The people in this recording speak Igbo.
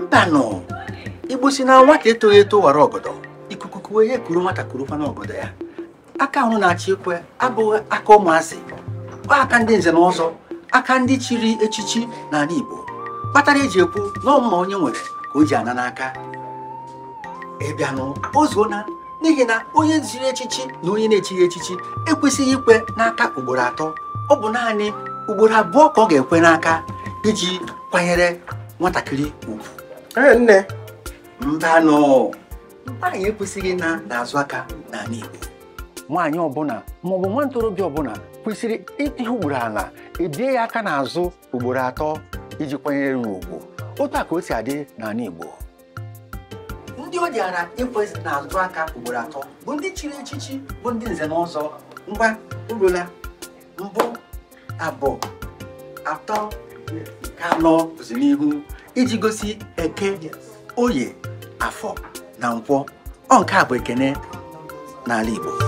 mbanụ igbo si na nwata etoghị eto wara ọgọdọ ikuku kuwe ya kuru nwata kuru kwana ọgọdọ ya aka ahụ na-achị ekwe abụghị aka ụmụazị aka ndị nze na ọzọ aka ndị chiri echichi na ala igbo kpatara eji ekwu na ọmụma onye nwere ka o ji ana n'aka ịbịanụ ozuona n'ihi na onye ziri echichi na onye na-echighị echichi ekwesịghị ikwe n'aka ugboro atọ ọ bụ naanị ugboro abụọ ka ọ ga-ekwe n'aka iji kwanyere nwatakịrị ugwu Ee nne. Mbanụ nwaanyị ekwesịghị na n'azụ aka n'ala Igbo nwaanyị ọbụla maọbụ nwa ntorobịa ọbụla kwesịrị ịtịhụ ugboro ala ebie ya aka n'azụ ugboro atọ iji kwanyere ya ugwu otu a ka o si adị n'ala Igbo ndị o ji ara ịkwesị n'azụ aka ugboro atọ bụ ndị chiri echichi bụ ndị nze n'ụzọ ngwa urula mbụ abụọ atọ nke anọ bụzi n'ihu iji gosi eke oye afọ na nkwọ ọ nke a bụ ekene n'ala Igbo